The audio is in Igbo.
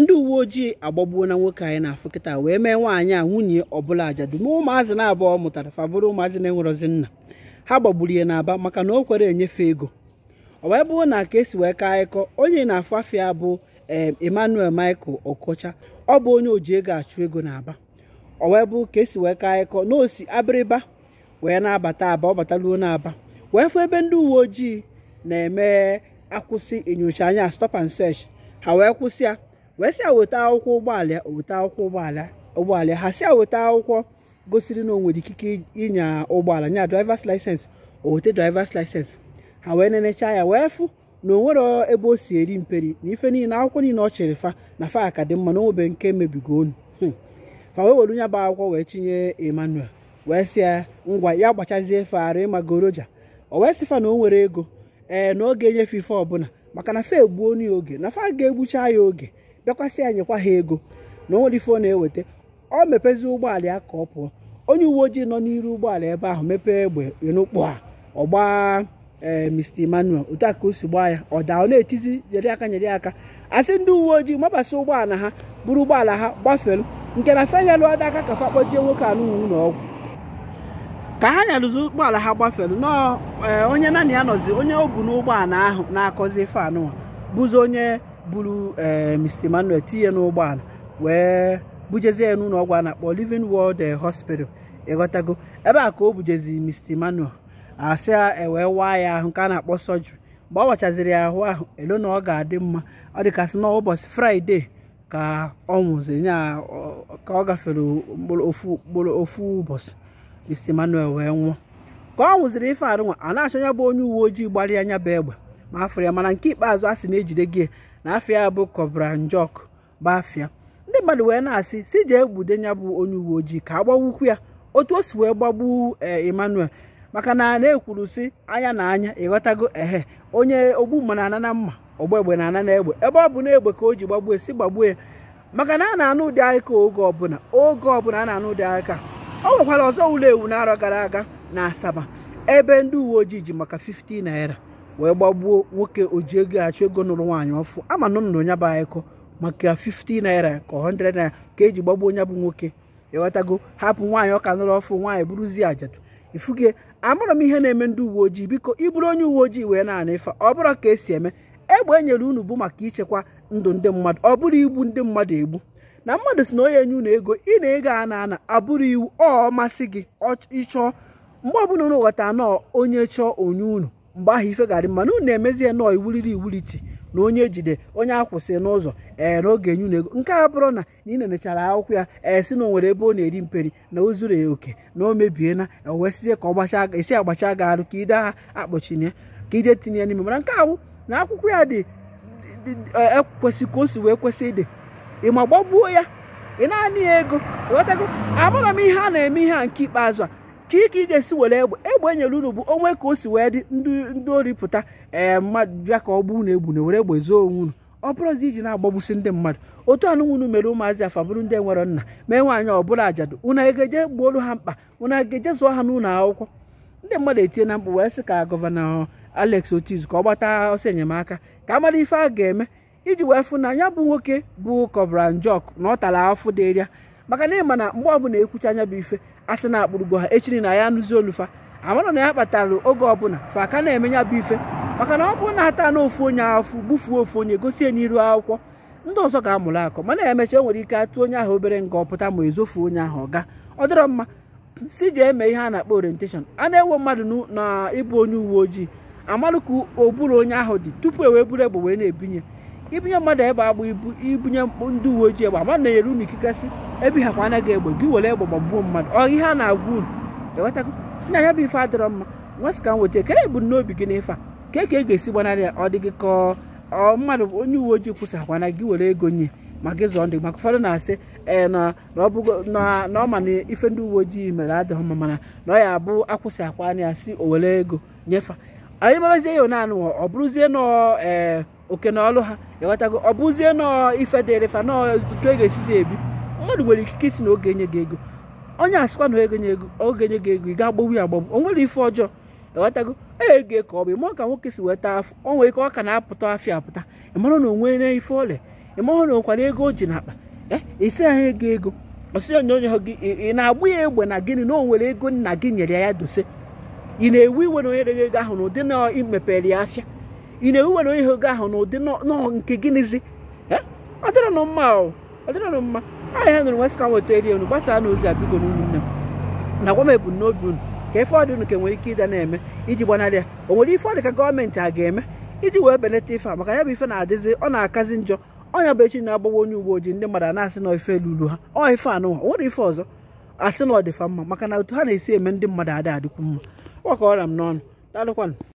ndị uwe ojii agbagbuo na nwoke anyị na-afụ kịta wee mee nwaanyị a nwunye ọbụla ajadu ma ụmụazị na-abụọ mụtara fabụrụ ụmụazị na-enwerozi nna ha gbagburu ya n'aba maka na o kwere enyefe ego ọ wee bụrụ na ka esi wee kaa ịkọ onye na-afụ afịa bụ eh, emmanuel michael okocha ọ bụ onye oji ego achụ ego n'aba ọ wee bụ ka esi wee kaa ịkọ na osi abịrịba wee na-abata aba ọ bataruo n'aba wee fụ ebe ndị uwe ojii na-eme akwụsị enyocha anya stop and search ha wee kwụsị ya wee sịa weta akwụkwọ ụgbọala weta akwụkwọ ụgbọala ụgbọala ha sịa weta akwụkwọ gosiri na onwere ikike ịnya ụgbọala nya drivers license o drivers license ha wee nenecha ya wee fụ na o nwere ebe o si eri mperi na ife niile akwụkwọ niile ọ chịrị fa na fa ka dị mma na onwebe nke mebigo onu hmm. fa wee were nya bụ akwụkwọ wee chinye Emmanuel wee si ya ngwa ya gbachazie ịma goroja. o wee sị fa na o nwere ego ee na oge enyefe ife ọbụla maka na fa egbuo onu ya oge na fa ga-egbucha ya oge bịakwasị ya ha ego na onwere ife ọ na-eweta ọ mepezi ụgbọala ya ka ọ pụọ onye uwe ojii nọ n'iru ụgbọala ebe ahụ mepee egbe n'ụkpụ a ọgba ee eh, Mr Emmanuel otu o si gbaa ya ọ daa ọ na-etizi nyere aka nyere aka asị ndị uwe ojii mabasa ụgbọala ha buru ụgbọala ha gbafelu nke na feyalụ ada aka ka fa nwoke anụnwụ na ọgwụ ka ha nyarụzi ụgbọala ha gbafelu eh, onye naanị ya nọzi onye o bu n'ụgbọala ahụ na-akọzi ife bụzi onye buru ee eh, Mr. Emmanuel tinye n'ụgbọala wee bujezie ya n'ụlọ ọgwụ a na-akpọ Living World eh, Hospital ịghọtago ebe a ka o bujezi Mr. Emmanuel asị ewee waa ya ahụ nke a na-akpọ sọjiri mgbe ọ wachaziri ya ahụ ahụ elu na ọ ga-adị mma ọ dịkasị na ụbọchị fraịde ka ọ nwụziri ya ka ọ gafere mkpụrụ ofu ụbọchị Mr. Emmanuel wee nwụọ ka ọ nwụziri ife anụ nwa a na-achọ ya bụ onye uwe ojii gbara ya anya bụ egbe ma afọ ya mana nke ikpeazụ a sị na-ejide gị na afịa bụ bụ kobranjok bụ afia ndị mmadụ wee na-asị si jee egbude bụ onye uwe ojii ka agbawukwu ya otu o si wee gbagbu eh, emmanuel maka na na-ekwuru si anya na anya ịghọtago ehe onye ogbu na anana mma ọgba egbe na anana egbe ebe ọ bụ na egbe ka o ji gbagbue si gbagbue ya maka na a na-anụ ụdị aka oge ọbụla oge ọbụla a na-anụ ụdị aka o nwekwara ọzọ ụlọ ewu n'arọ gara aga na asaba ebe ndị uwe ojii ji maka 50 naira wee gbagbuo nwoke oji ego achọ ego nụrụ nwaanyị ọfụ ama na nnụnụ ya bụ anyịkọ maka 50 naira ka 100 naira ka eji gbagbuo ya bụ nwoke ịghọtago hapụ nwaanyị ọka nụrụ ọfụ nwaanyị bụrụzie ajadu ifuge amara m ihe na-eme ndị uwe ojii biko ịbụrụ onye uwe ojii wee na-ana ife ọ bụrụ ka esi eme egbe e nyere unu bụ maka ichekwa ndụ ndị mmadụ ọ bụrụ igbu ndị mmadụ egbu na mmadụ si na onye enye unu ego ị na-ego a na-ana abụrụ iwu ọ masị gị ịchọọ mgbe ọbụla unu ghọta anọ onye chọọ onye unu mgbe ahụ ife ga-adị mma na unu emezie nọọ iwuriri iwuliti na onye jide onye akwụsị n'ụzọ ee n'oge enyu na ego nke a bụrụ na na ị nenechara akwụkwọ ya ee si na onwere ebe ọ na-eri mperi na o zuru ya oke na o mebie na e, wee sizie ka ọ gbacha esi agbacha gị arụ ka ide ha akpọchie ka ije tinye ya n'ime Ma nke ahụ na akwụkwọ ya dị ekwesị e, ka o si wee kwesị ịdị ịma gbagbuo ya ị naanị ya ego ghọtago abụrụ m ihe a na-eme ihe a nke ikpeazụ a ka ike iji esi were egbe egbe enyere unu bụ onwe ka o si wee dị ndị ori pụta ee eh, mmadụ bịa ka ọ gbuo unu egbu na were egbe zoo onwe unu ọ bụrụzi iji na-agbagbusi ndị mmadụ otu anụ unu mere ụmụazị afa bụrụ ndị nwere nna mee nwaanyị ọbụla ajadu unu ga egeje gbuolu ha mkpa unu egeje zụọ ha n'ụlọ akwụkwọ ndị mmadụ etie na mkpụ wee sị ka gọvanọ Alex Otiz ka ọ gbata ọsọ enyemaka ka a mara ife a ga-eme iji wee fụ na ya bụ nwoke bụ Kọbra Njọk na ọ tara afụ dịrịa maka na ịma na mgbe ọbụla ekwucha anya bụ ife asị na-akpụrụgo ha echiri na ya nụzi olufa amara na ya kpatara oge ọbụla fa aka na-eme ya bụ ife maka na ọ bụrụ na ata na ofu onye afụ gbufuo ofu onye gosi enye iru akwụkwọ ndị ọzọ ga-amụrụ akọ mana emecha enwere ike atụ onye ahụ obere nga ọpụta ma ezofu onye ahụ ọ ga ọ dịrọ mma si ji eme ihe a na-akpọ orientation a na-ewe mmadụ na ịbụ onye uwe ojii amalụ ka oburu onye ahụ dị tupu e wee buru egbe wee na-ebinye ibunye mmadụ egbe agba ibu ibunye ndị uwe ojii egbe ama na eru unu ikikasị ebi ha anaghị egbe gị were egbe gbagbuo mmadụ ọ ihe a na-agwa unu ewetago nna ya bụ ife adịrọ mma nwesị ka m weta ekere n'obi gị n'efe a ka ka e ga-esi gbanarị ya ọ dị gị ka ọ mmadụ onye uwe ojii kwụsị akwa na gị were ego nye ma gị zụọ ndị maka ụfọdụ na-asị ee na ọ ma na ife ndị uwe ojii mere adịghị mma mana na ọ ya abụ akwụsị akwa anya ya si o were ego nyefe anyị magazie ya naanị ọ bụrụzie na ee oke na ọlụ ha ịghọtago ọ bụzie nọọ ife dịrị fa nọọ otu ego esizi ebi mmadụ nwere ikike isi na oge nye gị ego onye asịkwa na oge nye ego oge nye gị ego ị ga-agbagbu ya agbagbu o nwere ife ọjọọ ịghọtago ee ego ka ọ bụ ịma ka nwoke si weta afọ o nwere ike ọ ka na-apụta afịa apụta ịmara na onwere ife ọrịa ịmara na nkwara ego o ji n'akpa e isi ahụ ego ego onye onyonyo gị ị na-agbụ ya egbe na gịnị na o nwere ego nna gị nyere ya dose ị na-ewu iwe na onye ego ahụ na ụdị na imepere ya afịa ị na-ewewere ewe ihe oge ahụ n'ụdị nọọ nke gịnịzi ọdịrọnụ mma ọdịrọnụ mma aha ihe nụrụ nwesịka nweta eri unu gbasaa n'ozi a biko n'ụmụnne m na gwa m ebumnobi unu ka ife ọdị unu ka nwere ike ịda na-eme iji gbanarị ya o nwere ife ọdị ka gọọmenti a ga-eme iji wee belata ife a maka ya bụ ife na-adịzi ọ na-akazi njọ ọnya bụ echi na-agbawa onye uwe ojii ndị mmadụ na-asị na ife luru ha ọ ife anụwa nwere ife ọzọ asị na ọ dịfa mma maka na otu ha na-esi eme ndị mmadụ adị adịkwu mma ọ ka ọra m n'ọnụ daalụkwanụ